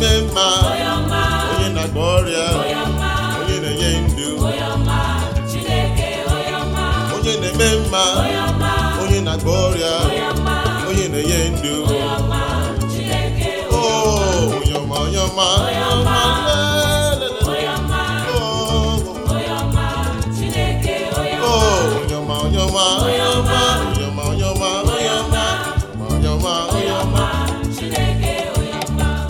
na-eme mma onye na-agba ọrịa onye na-enye ndụ onye na-eme mma onye na-agba ọrịa onye na-enye ndụ onye ọma onye ọma onye ọma